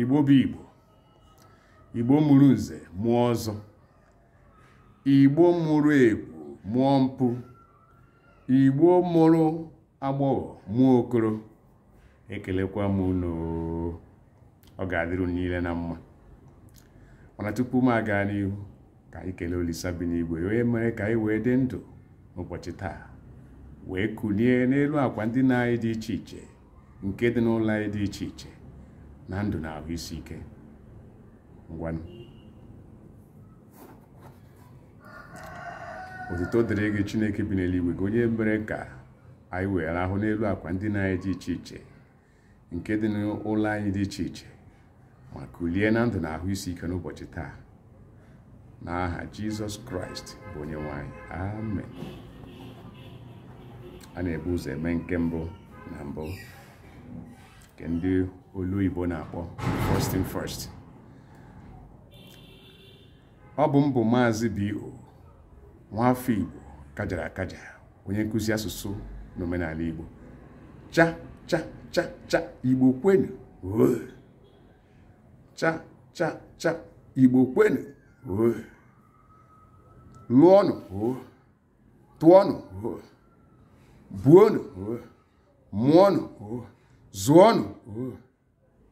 igbo bụ igbo igbo mụrụ nze mụọ ọzọ igbo mụrụ egwu mụọ mpụ igbo mụrụ agbọghọ mụọ okoro ekelekwa m unu ọ ga-adịrụ niile na mma mana tupu m aga n'ihu ka anyị kelee Olisa bi n'igwe e onye mere ka anyị wee dị ndụ n'ụbọchị taa wee kulie n'elu akwa ndị na anyị dị iche iche nke dị n'ụlọ anyị dị iche iche na ndụ na ahụ isi ike ngwanụ otuto dịrị gị chineke bi n'eluigwe gị onye mere ka anyị wee rahụ n'elu akwa ndị na-anyị dị iche iche nke dị n'ụlọ anyị dị iche iche ma kulie na ndụ na ahụ isi ike n'ụbọchị taa n'aha jizọs kraịst bụ onye nwanyị amen a na-ebu ụzọ eme nke mbụ na mbụ nke ndị olu Igbo na-akpọ first in first ọ bụ mbụ maazị B.O. nwafọ Igbo kajara akaja onye nkụzi asụsụ na omenala Igbo cha cha cha cha Igbo kwenu cha cha cha Igbo kwenu lụọnụ tụọnụ buonụ mụọnụ zụọnụ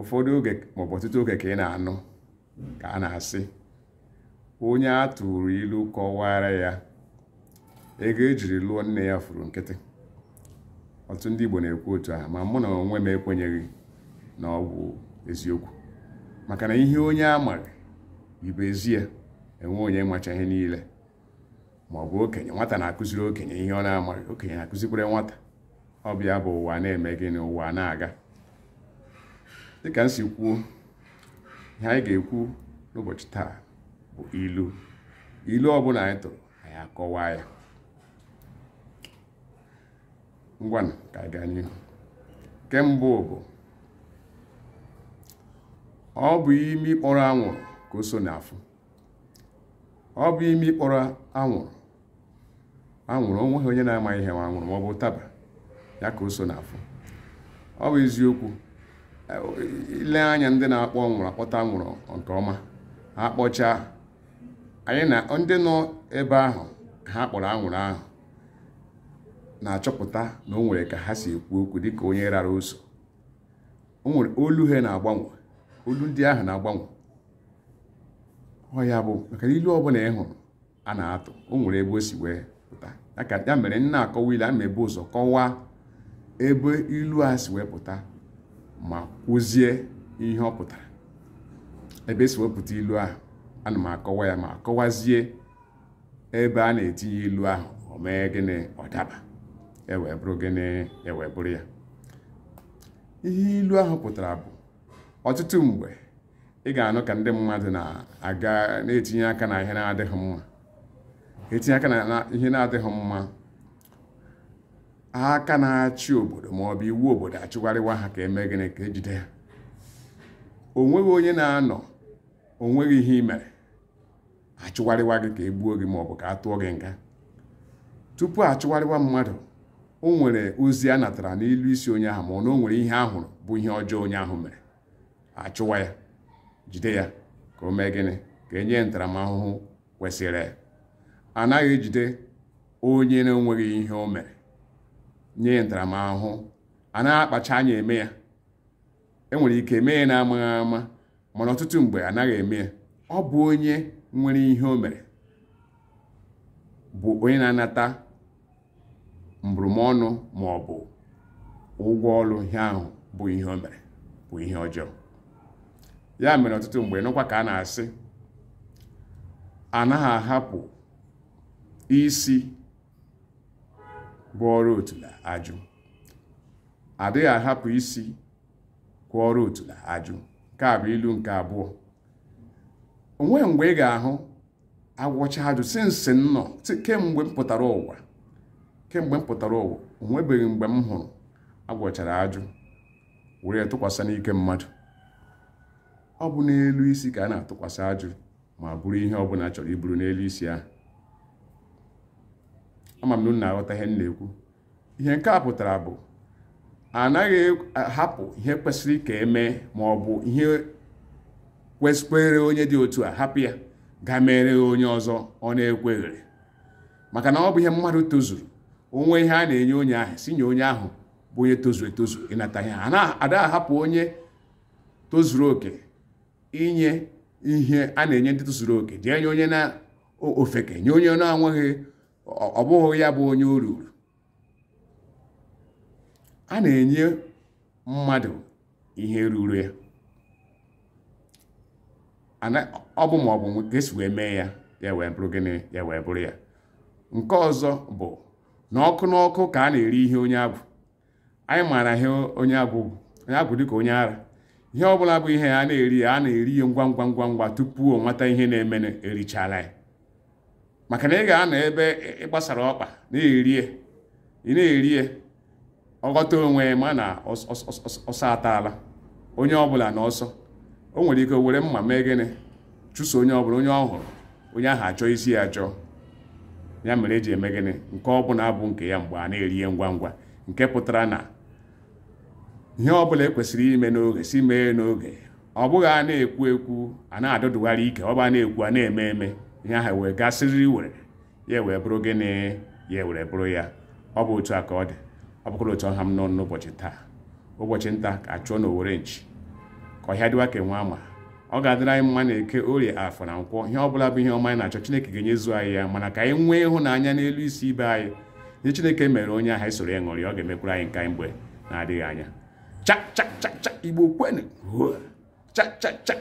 ụfọdụ oge maọbụ ọtụtụ oge ka ị na-anụ ka a na-asị onye a tụrụ ilu kọwara ya ego ejiri lụọ nne ya furu nkịtị ọtụtụ ndị Igbo na-ekwu otu a, ma mụ na onwe m ekwenyeghị na ọ bụ eziokwu maka na ihe onye a maghị ibe ezie enwe onye macha ihe niile ma ọ bụ okenye nwata na-akụziri okenye ihe ọ na-amaghị okenye na-akụzikwere nwata ọ bịa bụ ụwa na-eme na ụwa na-aga dịka m si kwuo ihe anyị ga-ekwu n'ụbọchị taa bụ ilu ilu ọ bụla anyị tụrụ anyị akọwaa ya Ngwa na ka anyị gaa n'ihu nke mbụ bụ ọ bụ imi ịkpọrọ anwụrụ ka o so n'afọ ọ bụ imi ịkpọrọ anwụrụ anwụrụ onweghị onye na-amaghị ihe ma anwụrụ ma ọ bụ ụtaba ya ka o so n'afọ ọ bụ eziokwu ile anya ndị na-akpọ nwụrụ akpọta nwụrụ nke ọma ha kpọchaa anyị na ndị nọ ebe ahụ ha kpọrọ anwụrụ ahụ na-achọpụta na o nwere ka ha si ekwu okwu dịka onye rara ụzọ o nwere olu ha na-agbanwe olu ndị ahụ na-agbanwe ọ ya bụ maka ilu ọbụla ị hụrụ a na-atụ o nwere ebe o si wee pụta ya mere nna akọwa ile a ma ebe ụzọ kọwaa ebe ilu a si wee pụta ma kwụzie ihe ọ pụtara ebe esi wepụta ilu ahụ ana m akọwa ya ma kọwazie ebe a na-etinye ilu ahụ o mee gịnị ọ daba ewee bụrụ gịnị ewee bụrụ ya ihe ilu ahụ pụtara bụ ọtụtụ mgbe ị ga-anụ ka ndị mmadụ na-aga na-etinye aka na ihe na-adịghị mma na ihe na-adịghị mma aka na-achị obodo maọbụ iwu obodo achụgharịwa ha ka eme gịnị ka ejide ha o nweghị onye na-anọ o nweghị ihe ị mere achụgharịwa gị ka e gbuo gị maọbụ ka a tụọ gị nga tupu achụgharịwa mmadụ o nwere ozi a natara n'ilu isi onye ahụ ma na o nwere ihe ahụrụ bụ ihe ọjọọ onye ahụ mere achụwa ya jide ya ka o mee gịnị ka enye ntaramahụhụ kwesịrị ya anaghị ejide onye na-enweghị ihe o mere nye ntaramahụhụ a na-akpacha anya eme ya enwere ike eme ya na-amaghị ama mana ọtụtụ mgbe anaghị eme ya ọ bụ onye nwere ihe o mere bụ onye na-anata mbụrụmọnụ ma ọ bụ ụgwọ ọrụ ihe ahụ bụ ihe o mere bụ ihe ọjọọ ya mere ọtụtụ mgbe n'ụkwa ka a na-asị anaghị ahapụ isi gwọọrọ otula ajụ adịghị ahapụ isi gwọọrọ otula ajụ nke a bụ ilu nke abụọ onwe mgbe ị ga-ahụ agwọcha ajụ si kemgbe mpụtara ụwa kemgbe m pụtara ụwa onwebeghị mgbe m hụrụ agwọchara ajụ were tụkwasị n'ike mmadụ ọ bụ n'elu isi ka a na-atụkwasị ajụ ma bụrụ ihe ọbụla chọrọ iburu n'elu isi ahụ ama m na unu aghọta ihe m na-ekwu ihe nke a pụtara bụ anaghị ahapụ ihe kwesịrị ka eme ma ọ bụ ihe kwesịkwere onye dị otu a hapụ ya ga mere onye ọzọ ọ na-ekweghịrị maka na ọ bụ ihe mmadụ tozuru onwe ihe a na-enye onye ahụ si nye onye ahụ bụ onye tozuru etozu ịnata ihe a ada ahapụ onye tozuru oke inye ihe a na-enye ndị tozuru oke jee nye onye na ofeke nye onye na-anweghị ọ bụghị ya bụ onye o ruru a na-enye mmadụ ihe ruru ya ọ bụ ma ọ bụ wee mee ya ya wee bụrụ gịnị ya wee bụrụ ya nke ọzọ bụ na ọkụ n'ọkụ ka a na-eri ihe onye abụ anyị maara ihe onye abụ onye abụ ka onye ara ihe ọbụla bụ ihe a na-eri a na-eri ya ngwa ngwa ngwa ngwa tupu ọ nwata ihe na-eme erichala ya maka na ị ga-anọ ebe ịgbasara ọkpa na eri ị na eri ọghọta onwe ma na ọsọ ataala onye ọbụla na ọsọ o nwere ike were mma mee gịnị chụso onye ọbụla onye ọ hụrụ onye ahụ achọ isi ya achọ ya mere eji eme gịnị nke ọbụla abụ nke ya mgbe a na-erie ngwa ngwa nke pụtara na ihe ọbụla ekwesịrị ime n'oge si mee n'oge ọ bụghị a na-ekwu ekwu a na-adọdụgharị ike ọ a na-ekwu a na-eme eme ihe ahụ wee gasịrị were ya wee bụrụ gịnị ya were bụrụ ya ọ bụ otu a ka ọ dị ọ bụkwara otu ọha m nọ n'ụbọchị taa ụbọchị nta ka achụọ na owere nchi ka ọhịa dịwa ka nwa ama ọ ga-adịrị anyị mma na eke orie afọ na nkwọ ihe ọbụla bụ ihe ọma anyị na-achọ Chineke ga-enyezu anyị ya mana ka anyị nwee ịhụnanya n'elu isi ibe anyị nye Chineke mere onye ahụ anyị e soro ya ṅụrị ọ ga-emekwuru anyị nka mgbe na-adịghị anya chachachacha igbo kwenu chachacha